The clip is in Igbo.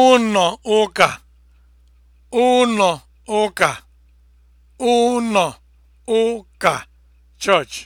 ụnọ ụka ụnọ ụka ụnọ ụka church